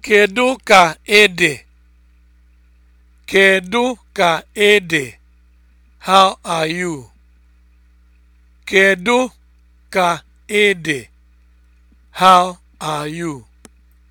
Kedu ka ede? Kedu ka ede? How are you? Kedu ka ede? How are you?